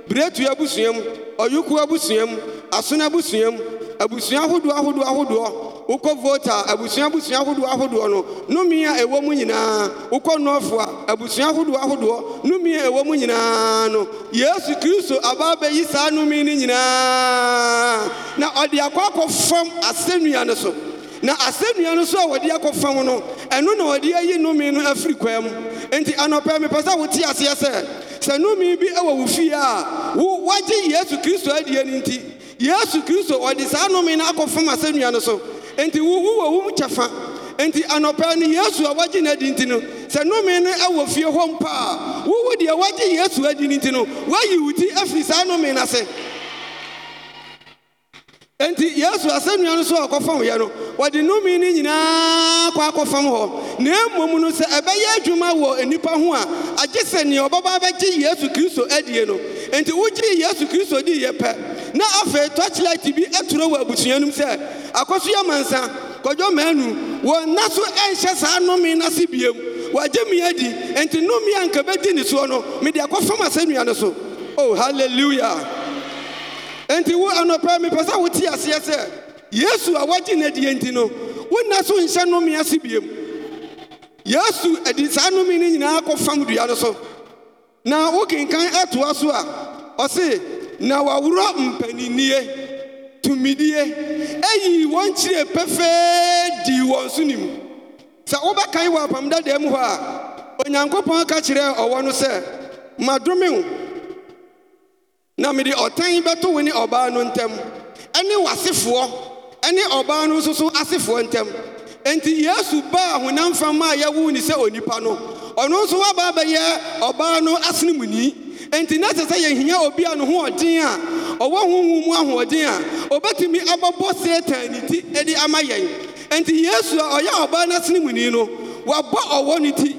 biretua abusuam ɔyoko abusuam asona busuam abusua ahodoɔ ahodoɔ ahodoɔ wokɔ vota abusua abusua ahodoɔ ahodoɔ no nome a ɛwɔ mu nyinaa wokɔ nnɔfoa abusua ahodoɔ ahodoɔ nomi a ɛwɔ mu nyinaa no yesu kristo abaa bɛyi saa nnomi no nyinaa na ɔde akɔ akɔfam asɛnnua no so na asɛ nnua no so a wɔde akɔfam no ɛno na ɔde ayi nnome no afiri kwaa m enti anɔpɛɛ mepɛ sɛ wote aseɛ sɛ sɛ nome bi ɛwɔ wo fie a wo wɔagye yesu kristo adie no nti yesu kristo ɔde saa nnome no akɔfam asɛ nnua no so enti wu wowawom kyɛ fa enti anɔpɛɛ no yesu a wɔgye n'adi nti no sɛ nome ne ɛwɔ fie hɔ mpa a wowo deɛ wɔgye yesu adi no nti no woayi wo ti afiri saa nnome no se nti, yesu asɛnnua no so a ɔkɔfam yɛ no wɔde nomi no nyinaa kɔ akɔfam hɔ na mmom no sɛ ɛbɛyɛ adwuma wɔ nnipa ho a agye sɛ nea ɔbɛba bɛgye yesu kristo adie no nti wogye yesu kristo di diiɛ pɛ na afei tɔkyelɛte bi aturo wɔ abusuanom sɛ akɔso yɛ mansa kɔdwɔ maanu wɔn nna so ɛnhyɛ saa nome no ase biom wɔagye me adi nti nomi a nka bɛdi ne soɔ no mede akɔfam asɛnnua no so o oh, hallelujah. enti wo anɔpɛ mepɛ sɛ wote aseɛ sɛ yesu a woagye no adiɛ nti no wonna so nhyɛ nome ase biom yesu adi saa nome no nyinaa kɔfam dua no so na wokenkan atoa so a ɔse na waworɔ mpaninnie tumidie ɛyii wɔn kyiree pɛfɛɛ dii wɔn so nim sɛ wobɛkan wɔ apam dadaa mu hɔ a onyankopɔn ka kyerɛɛ ɔwɔ no sɛ madome wo na mede ɔtan bɛto wo ne ɔbaa no ntam ɛne w'asefoɔ ɛne ɔbaa no nso so asefoɔ ntam enti yesu baa honam fam a yɛwo ne sɛ onipa no ɔno nso waba bɛyɛ ɔbaa no asenemuni enti na sɛ sɛ yɛhia obi a ne ho ɔden a ɔwɔ honhom mu ahoɔden a ɔbɛtumi abɔbɔ satan ne ti de ama yɛn enti yesu a ɔyɛ ɔbaa no asenemuni no wabɔ ɔwɔ ne ti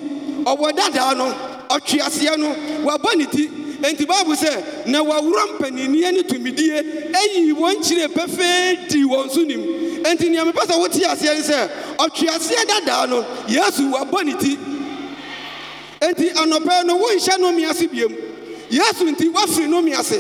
ɔwɔ dadaa no ɔtweaseɛ no wabɔ ne ti enti bible sɛ na w'worɔ mpa ninniɛ ne tumidie ɛyii wɔn kyire pɛfɛe dii wɔn so nim enti nea mepɛ sɛ wotee aseɛ ne sɛ ɔtwe aseɛ dadaa no yɛasu w'abɔ ne ti enti anɔpɛɛ no wonhyɛ nome ase biem yɛasu nti wofi nome ase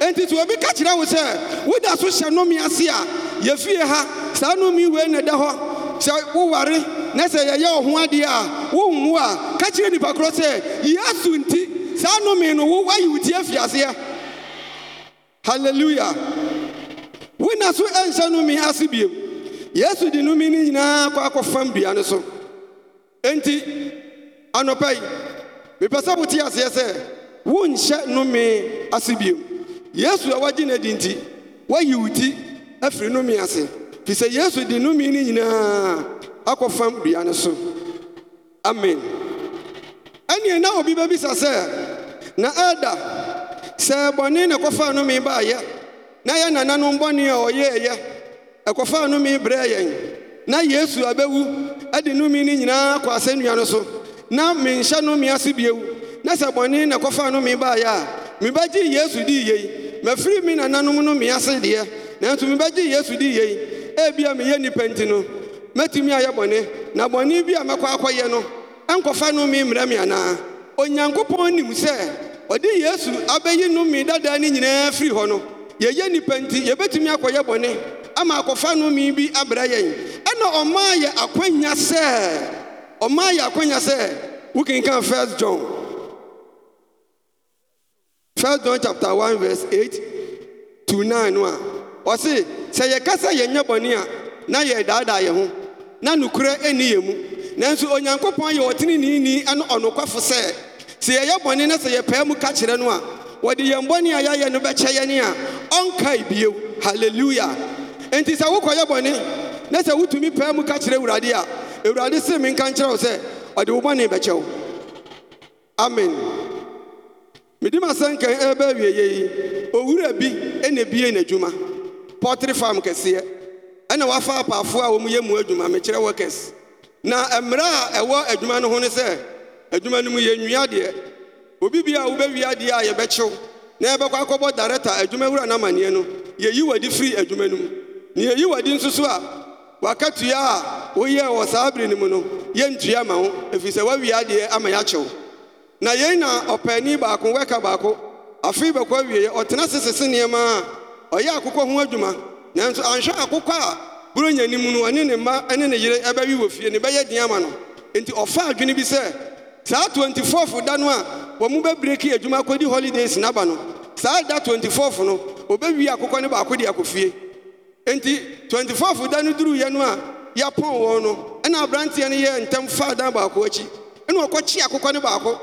enti sɛ wobi ka kyerɛ wo sɛ woda so hyɛ nome ase a yɛfie ha saa nnomiwei ne da hɔ sɛ woware na sɛ yɛyɛ ɔho adeɛ a wonmo a ka kyerɛ nnipa korɔ sɛ yɛ asu nti saa nome no wo wayi wo ti afi aseɛ halleluya wona so ɛnhyɛ nome ase bim yesu de nome ne nyinaa kɔ akɔfam dua ne so enti anɔpɛ ye mepɛ sɛ wote aseɛ sɛ wonhyɛ nome ase bim yesu a woagye ne adi nti woayi wo ti afiri nome ase firi sɛ yesu de nome ne nyinaa akɔfam dua ne so amen ɛneɛ na obi bɛbisa sɛ na ada sɛ bɔne na ɛkɔfaa nome baayɛ na yɛ nananom bɔne a ɔyɛɛyɛ ɛkɔfaa nome brɛɛ yɛn na yesu abɛwu ade nome no nyinaa kɔ asɛnnua no so na menhyɛ nome ase bio na sɛ bɔne na ɛkɔfaa nome baayɛ a mebɛgye yesu dii yei mafiri me nananom nome ase deɛ nanso mebɛgye yesu dii yei ebia meyɛ nnipa nti no mɛtumi ayɛ bɔne na bɔne bi a mɛkɔ akɔyɛ no ɛnkɔfa nome mmrɛ me anaa onyankopɔn nim sɛ ɔde yesu abɛyi nnome dadaa ne nyinaa firi hɔ no yɛyɛ nnipa nti yɛbɛtumi akɔyɛ bɔne ama akɔfa numi bi abrɛ yɛn ɛna ɔmaa yɛ akwanya sɛ ɔmaa yɛ akwanya sɛ wokenkan first john first john chapter 1 verse 8 to 9 no a ɔse sɛ yɛnyɛ bɔne a na yɛdaadaa na nokorɛ mu nanso onyankopɔn yɛ ɔnokwafo sɛ sɛ yɛyɛ bɔne no sɛ yɛpɛɛ mu ka kyerɛ no a wɔde yɛn bɔne a yɛayɛ no bɛkyɛ yɛne a ɔnkae bio halleluya enti sɛ wokɔyɛ bɔne na sɛ wotumi pɛɛ mu ka kyerɛ awurade a awurade se menka nkyerɛ wo sɛ ɔde wo bɔne bɛkyɛ wo amen mede masɛnkan ɛbɛ awieyɛ yi owura bi ɛna bie n'adwuma pɔtere farm kɛseɛ ɛna wafa apaafoɔ a wɔm yɛ mu adwuma mekyerɛ workers na mmerɛ a ɛwɔ adwuma no ho ne sɛ adwuma no mu yɛnnua deɛ obi bia a wobɛwie adeɛ a yɛbɛkyew na yɛbɛkɔ akɔbɔ dareta adwuma wura n'amanneɛ no yɛyi w'adi firi adwuma no mu na yɛyi w'adi nso so a wakatua a woyɛɛ wɔ saa bere no mu no yɛntua ma wo ɛfiri sɛ woawie adeɛ ama yɛakyew na yɛn na ɔpaani baako wɛka baako afei bɛkɔ awieɛ ɔtena sesese nneɛma a ɔyɛ akokɔ ho adwuma nanso anhwɛ akokɔ a buronyanim no ɔne ne mma ne ne yere ɛbɛwe wɔ fie ne bɛyɛ den ama no enti ɔfa adwene bi sɛ saa 24 da no a wɔn mu bɛbreki adwuma akɔdi holidays n'aba no saa da 24 no obɛwie akokɔ no baako de akɔ fie nti 24 da no duruiɛ no a yɛapɔn wɔn no ɛna aberanteɛ no yɛ ntɛm faa dan baako akyi ɛna ɔkɔkye akokɔ no baako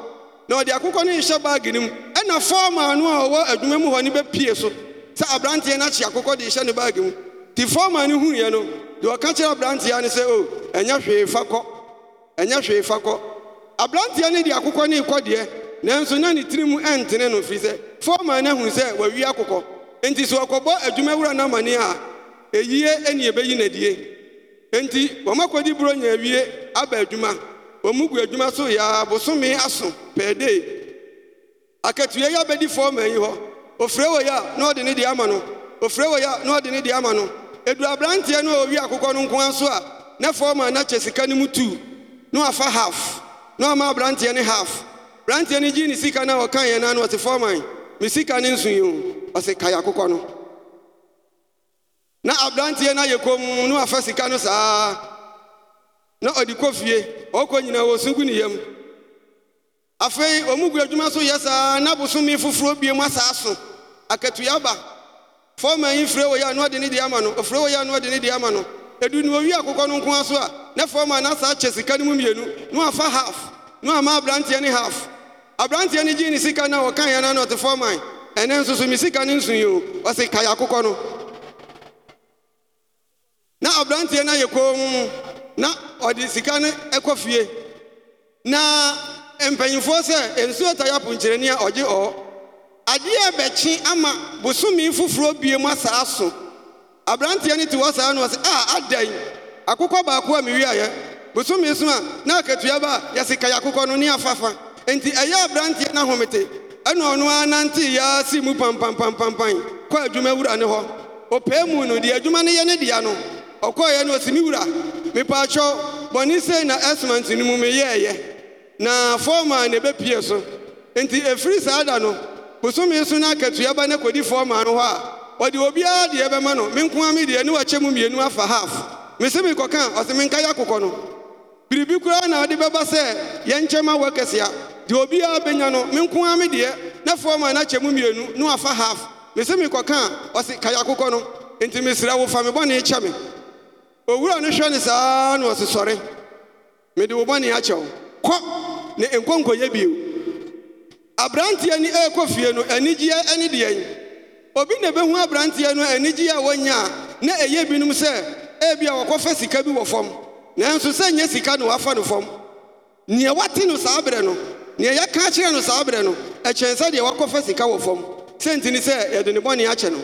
na ɔde akokɔ no nhyɛ baage no mu ɛna fɔɔma no a ɔwɔ adwuma mu hɔ no bɛpie so sɛ aberanteɛ no akye akokɔ de hyɛ ne baage mu nti fɔɔma no huiɛ no deɛ ɔka kyerɛ aberanteɛ no sɛ o oh, ɛnyɛ hwee fa kɔ ɛnyɛ hwee fa kɔ aberanteɛ no de akokɔ ne rekɔdeɛ nanso na ne tiri mu ɛntene no firi sɛ fɔɔma no ahunu sɛ wawi akokɔ enti sɛ ɔkɔbɔ adwuma wura no amane a ɛyie ɛne ɛbɛyi n'adie enti wɔmakɔdi buro nya awie aba adwuma wɔn gu adwuma so yɛa bosome aso pɛɛdee akatua yi abɛdi fɔɔma yi hɔ ofure wɔ yi a na ɔde ne deɛ ama no ofure wɔ yi a na ɔde ne deɛ ama no edu aberanteɛ no a owi akokɔ no nko ara so a na fɔɔma na kyɛ sika no mu tuu na wafa half na ɔma aberanteɛ ne half aberanteɛ eh? no gyi ne sika na a ɔka yɛn no ɔte fɔman me sika ne nsu yi o ɔse kae akokɔ no na aberanteɛ no ayɛ kom na wafa sika no saa na ɔde kɔ fie ɔkɔ nyinaa wɔ sunku ne yam afei ɔmu gu adwuma so yɛ saa na bosome foforɔ bie mu asaa so akatua ba fɔman yi firɛ wɔ yɛ a na ɔde ne deɛ ama no ɔfirɛ wɔ yɛ a na ne deɛ ama no edu no owi akwụkwọ no nko a so a na fam a na saa kyɛ sika no mu mmienu na wafa half na wama aberanteɛ ne haf. aberanteɛ no gyee ne sika no a wɔkaeɛ na ɔte fam an ɛnɛ nso so me sika no nsuyi o ka ya akwụkwọ no na aberanteɛ na ayɛ koom na ɔde sika no ɛkɔ fie na mpanyimfoɔ sɛ nsuo tayapo nkyerɛni a ɔgye ɔɔ adeɛ a bɛkye ama bosome foforɔ bie mu asaa so aberanteɛ no te hɔ saa no ɔsɛ a ah, adɛn akokɔ baako a mewieeɛ bosome so a na akatua ba a yɛsekae akokɔ no ne afafa enti ɛyɛ aberanteɛ no ahomete ɛna ɔno ara nante yɛa si mu pampampampampan kɔ adwuma wura ne hɔ ɔpɛɛ mu no deɛ adwuma no yɛ ne dea no ɔkɔɔeɛ no ɔsi me wura mepaakyɛw bɔne sei na ɛsmant no mu meyɛɛyɛ na fɔɔma ne ɛbɛpie so enti ɛfiri saa da no bosome so no akatua ba na kɔdi fɔma no hɔ a ɔde obiara deɛ ɛbɛma no me nko a me deɛ ne wakyɛ mu mmienu afa half me se mekɔka a ɔse menka yɛ akokɔ no biribi koraa na ɔde bɛba sɛ yɛnkyɛma wɔ kɛsea deɛ obiara bɛnya no me nko a me deɛ na fɔm a nakyɛ mu mmienu ne wafa half me se mekɔka a ɔse ka yɛ akokɔ no enti mesrɛ wo fa me bɔne kyɛ me owura no hwɛ ne saa na ɔse sɔre mede wo bɔne akyɛ kɔ ne nkɔnkɔyɛ bio aberanteɛ ne ɛrekɔ fie no anigyeɛ ne deɛn obi na ebehu aberanteɛ no anigye a wɔnya a na ɛyɛ binom sɛ ebi a wɔkɔfa sika bi wɔ fam nanso sɛ nyɛ sika na wafa no fam nea wate no saa berɛ no nea yɛka kyerɛ no saa berɛ no ɛkyɛn sɛ deɛ wakɔfa sika wɔ fam sɛnti ne sɛ yɛde ne bɔne akyɛ no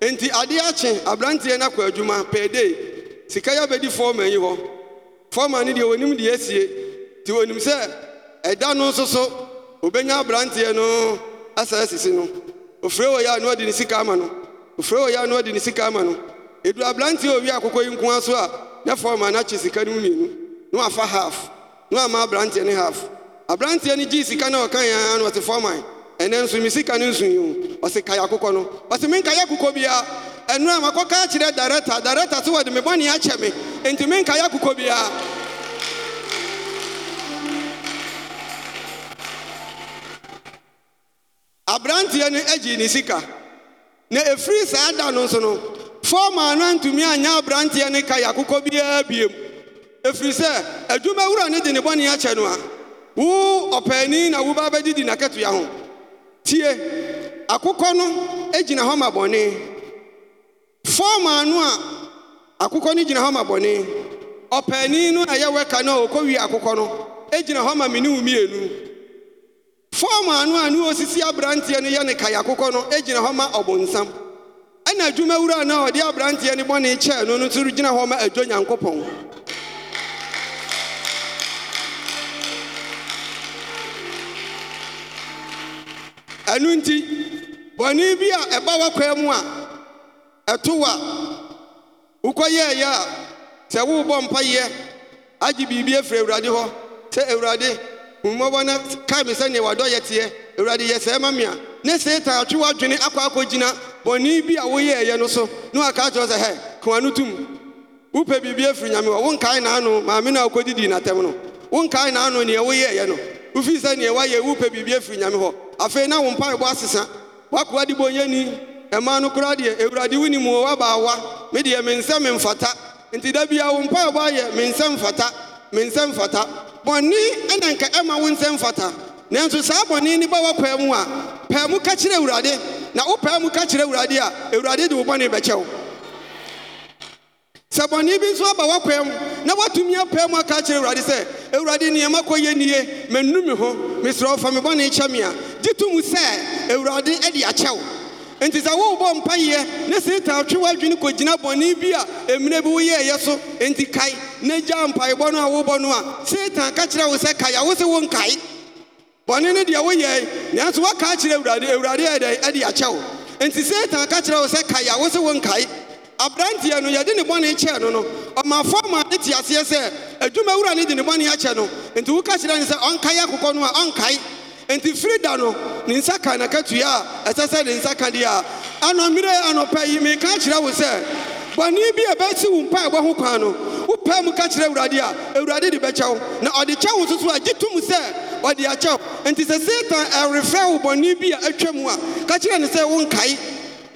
enti adeɛ akye aberanteɛ no akɔ adwuma pɛɛ sika yɛ abɛdi fɔɔma yi hɔ fɔɔma no deɛ wɔnim deɛ asie nti wɔnim sɛ ɛda no nso so obɛnya aberanteɛ no asɛ asisi no ɔfirii wɔ yɛ a no ɔde ne sikaa ama no ɔfirii ɔ yɛ a no ɔde ne sika ama no ɛdu aberanteɛ ɔwi akokɔ yi nko a so a nɛ faɔma noakye sika no mninu ne afa half ne ama abranteɛ ne half abranteɛ no gyi sika na ɔkaeyɛ ara no ɔte fa mae ɛnɛ nsome sika no nsui o ɔse kayɛ akokɔ no ɔte menkayɛ akokɔ biaar ɛno a makɔ ka akyerɛ darekta direkta so wɔde mebɔne akyɛ me enti menkayɛ akokɔ biaara aberanteɛ no agyi ne sika na ɛfiri saa da no nso no fɔɔma no antumi anyɛ aberanteɛ no kaya kokɔ biara biem ɛfiri sɛ adwuma wura ne de ne bɔne akyɛ no a wo ɔpaani na woba bɛgyedi n'akatoa ho tie akokɔ no gyina hɔ ma bɔne fɔɔma no a akokɔ no gyina hɔ ma bɔne ɔpaani no a ɛyɛ wɛka no a ɔkɔwie akokɔ no gyina hɔ ma mene mmienu fọm anụ anụ osisi aberanteɛ no yɛ ne kae akokɔ no gyina e hɔ ma ɔbonsam ɛna e adwumawura na ɔde aberanteɛ no bɔne kyɛɛ no no nso gyina hɔ ma adwo e nyankopɔn ɛnu nti bɔne bi a ɛba w'akwaa mu a ɛto a wokɔyɛeɛ a sɛ mpa mpayɛ agye biribi efiri awurade hɔ sɛ awurade mmɔbɔ na kaa mi sɛnea wadɔ yɛ teɛ awurade yɛ sɛɛ ma mia ne seetan atwe w'adwene akɔ akɔgyina bɔne bi a woyɛ ɛyɛ no so na waka kyerɛ sɛ hɛ kowa no tum wopɛ biribi afiri nyame hɔ maame natɛm no woyɛ ɛyɛ no sɛ biribi nyame hɔ afei na wo mpaebɔ asesa no deɛ wɔ me nti da wo ayɛ me me nsɛm fata bɔne ɛna nka ɛma wo nsɛm fata nanso saa bɔne ne ba wɔpɛɛ mu a pɛɛ mu ka kyerɛ na ụ mu ka kyerɛ a awurade de wo bi nso aba mu na woatumi apɛɛ mu aka kyerɛ awurade sɛ awurade nneɛma nie ho me kyɛ a mu sɛ nti sɛ ne ne gya mpaebɔ no a wobɔ no a setan ka kyerɛ wo sɛ kae a wo se wo nkae bɔne no deɛ woyɛe nanso woaka akyerɛ awurade awurade ɛde akyɛ wo enti setan ka kyerɛ wo sɛ kae a wo se wo nkae aberanteɛ no yɛde ne bɔne kyɛɛ no no ɔmafo ma ne te aseɛ sɛ adwuma wura ne de ne bɔne akyɛ no enti woka kyerɛ ne sɛ ɔnkae akokɔ no a ɔnkae enti firi da no ne nsa ka nakatua a ɛsɛ sɛ ne nsa ka deɛ a anɔmmerɛ anɔpɛ yi meka kyerɛ wo sɛ bɔne bi a ɛbɛsi wo mpaebɔ ho kwan no wopɛ mu ka kyerɛ awurade a awurade de bɛkyɛ wo na ɔde kyɛ wo soso a gye tom sɛ ɔde akyɛ wo enti sɛ satan ɛrefrɛ wo bɔne bi a atwa mu a ka kyerɛ ne sɛ wonkae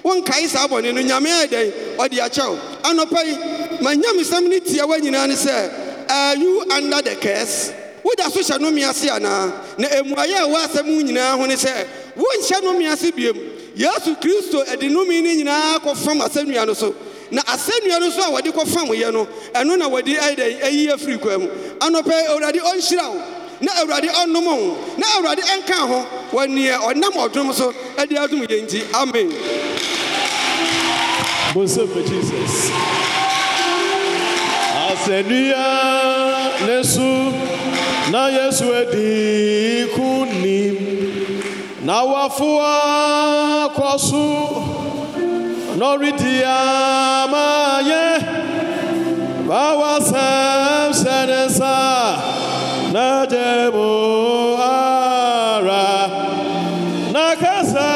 wonkae saa bɔne no nyame ayɛ e dɛn ɔde akyɛ wo anɔpa yi manyamesɛm no tia wa nyinaa ne sɛ are you under the curse woda so hyɛ nome ase anaa na ɛmuayɛ a ɛwɔ asɛm nyinaa ho ne sɛ wonhyɛ nome ase biom yesu kristo ɛde nome no nyinaa kɔfam asɛnnua no so na asɛnnua no nso a wɔde fam yɛ no ɛno na wɔde ayɛdɛ ayi afiri kwa mu anɔpɛ awurade ɔnhyira wo na awurade ɔnnom wo na awurade ɛnka ho wɔ neɛ ɔnam ɔdom so ɛde adom yɛ nti amen bonsɛm ma jesus asɛnnua ne so na yesu adi ko nim na wafoa kɔ so nɔridi ama yɛ bawa sɛm sɛnɛ na n'adɛ mo ara n'akasɛ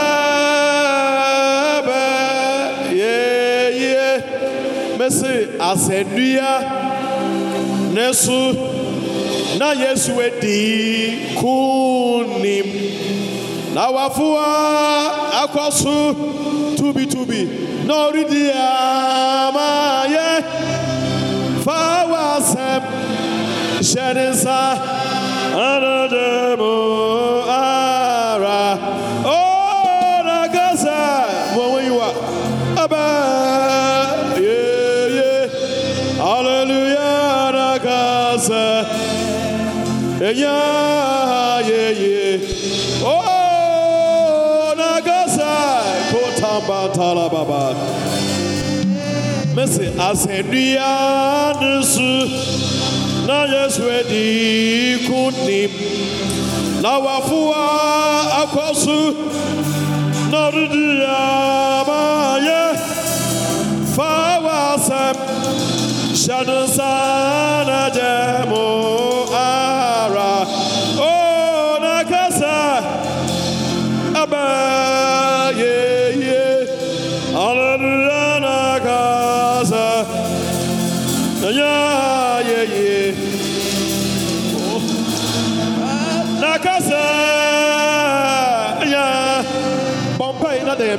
bɛ yeye mesi asɛnua n'esu na yesu edi kunim na wafuwa akɔ tubi tubitubi na ɔredi ye fa wa asɛm hyɛ ne nsa anadɛ mu ara o na gaza mo wɔn yi wa aba yeye hallelujah na gaza enya yeye. Shabatalababa. Messi, Asendianusu, Nayas Wedi Kunim, Nawafua Akosu, Narudiyamaya, Fawasam, Shadusana Demo.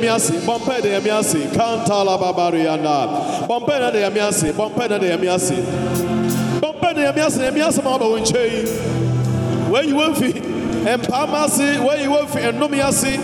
yɛmi ase bɔmpɛ na yɛmi ase kantala babari yanda Bompe na na yɛmi ase bɔmpɛ na na yɛmi ase bɔmpɛ na yɛmi ase na yɛmi ase ma fi mpaama ase wɔyi wɔfiri nnome ase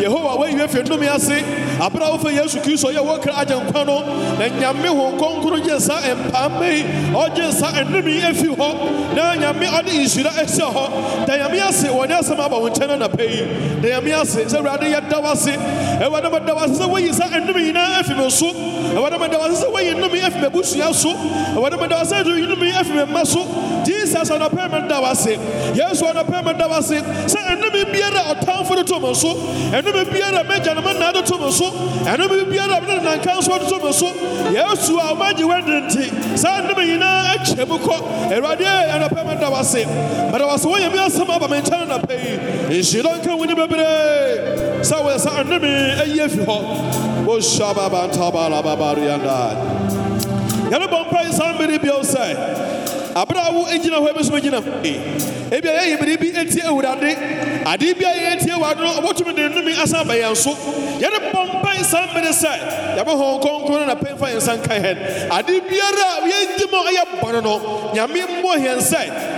yehowa wɔyi wɔfiri nnome ase abere a wɔfɛ yesu kristo yɛ wɔkra agye nkwa no na nyame ho nkronkron gye nsa mpaama yi ɔgye nsa nnome efi hɔ na nyame ɔde nhyira ɛhyɛ hɔ da nyame ase wɔne asɛm aba wɔn nkyɛn na pɛ yi da nyame ase sɛ awurade yɛ da wase awurade mɛ da wase sɛ wɔyi nsa nnome nyinaa efi mi so awurade mɛ da wase sɛ wɔyi nnome m'ebusua so awurade mede wo sɛ ɛdu yinumi afi me mma so jesus anɔpɛ me da wase yesu anɔpɛ me da wase sɛ ɛnome biara ɔtamfo de to me so ɛnome biara mɛgya ne de to me so ɛnome biara mene ne nanka de to me so yesu a womagye w'adene nti saa nnome nyinaa akyɛ mu kɔ awurade da wase mede wase woyɛ me asɛm aba me nkyɛn anapa yi nhyira nka wo ne bebree sɛ woyɛ sɛ ɛnome ayi afi hɔ wohyɛ babantabalababareandaa yɛrebɔmpai san mmere bio sɛ aberɛ a wo angyina hɔ abɛsomgyina e ebia yɛ yimerebi atie awurade ade bia yɛ atie waa deno ɔbotumi de nomi asan bɛ yɛ so yɛrebɔmpae san mmere sɛ yɛbɛhɔn kɔnkɔna na pɛifa ɛnsan kan hɛn ade biaraa yɛ gyema yɛ bɔne no nyame mbɔ hɛm sɛ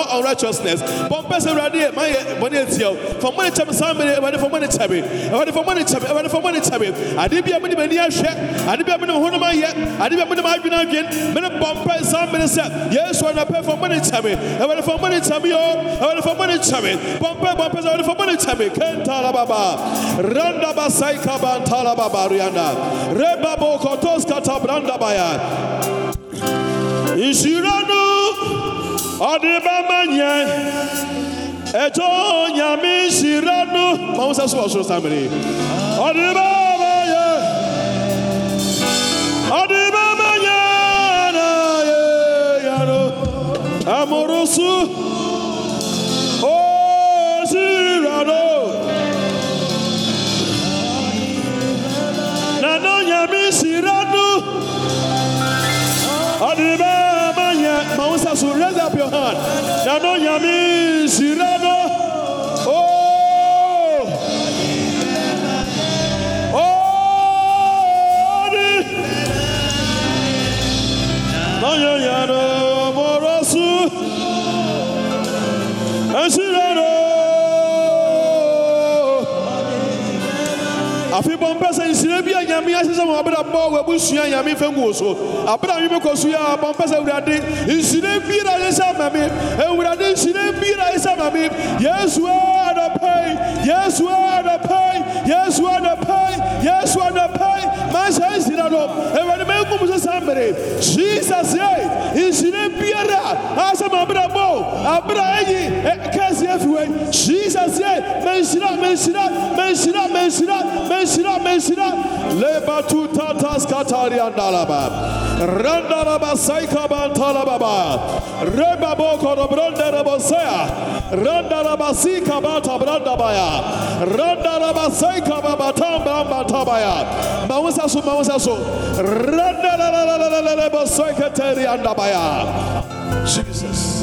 all unrighteousness. Bumpers and Radia, my money tell. For money time, somebody ready for money time. Ready for money time, ready for money time. I did be a money money share. I did be a money one of my yet. I did be a money my bin again. Men a bumper somebody said, Yes, when I pay for money time. I ready for money time, yo. I ready for money time. Bumper, bumpers, I ready for money time. Kentala Baba. Randa Basai Kaban Tala Baba Rianda. Reba Kotos Kata Branda Baya. Insurance. ọdịbama nye eto nyame nhyira no ma wo sɛ so wɔ soro saa mmere ɔdebama yɛ ɔdebama nyɛ na yɛ ya no amoro so your hand. Now, no, Yami, afei bɔ mpɛ sɛ nsire bi a nyame ahyehyɛ ma abrabɔ wabusua nyame fɛ ngu wo so abrɛ a wemekɔ so yɛ a bɔ mpɛ sɛ awurade ma me awurade ma me yesu a anɔpɛi yesu a anɔpɛi yesu a anɔpɛi yesu a anɔpɛi mahyɛ nsira no awurade mɛnkum so saa jesus ye biara a ahyɛ ma abrabɔ abrɛ ɛkɛ asie fi wei hyisa sie menhyira menhyira menhyira menhyira menhyira menhyira leba tu tatas kataria ndalaba Randalaba Saikaba Talababa Rebabo Korobranda Rabosea Randalaba Sikabata Brandabaya Randalaba Saikaba Batamba Batabaya Mausasu Mausasu Randalaba Saikateri Andabaya Jesus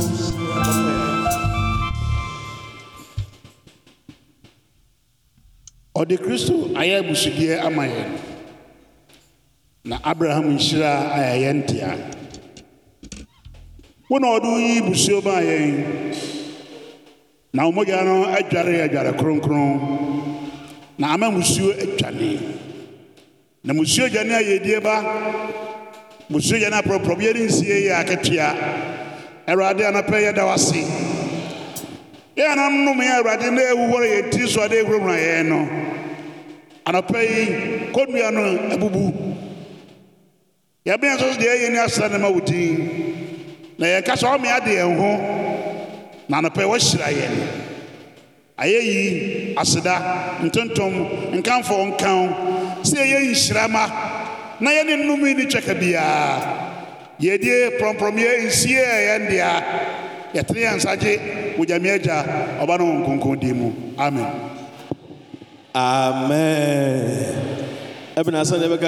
dị kristo ayɛ abusudeɛ ama na abraham nhyira a ntị ntea wo na ɔde woyi busuo maa yɛn na ɔmogya no adware adware kronkron na ama musuo atwane na musuo gya ne ayɛdie ba musuo gya ne aprɔprɔbeɛ ne nsie yɛ aketea awurade anapɛ yɛda yɛn na na ɛwu wɔre yɛ ti so ade ewurawura ya no anɔpɛ yi kɔnnua no abubu ya nso so deɛ ya ni asra na ma na ya kasa adị ya na ya yi ya ya ayɛyi aseda ntontom nkan nhyirama na ya ne nnum yi ne twɛka ya ya nsie ya yɛteneyɛnsadze wodyamiɛgya ɔba nohu kunkum di mu amɛ ɛbinasɔne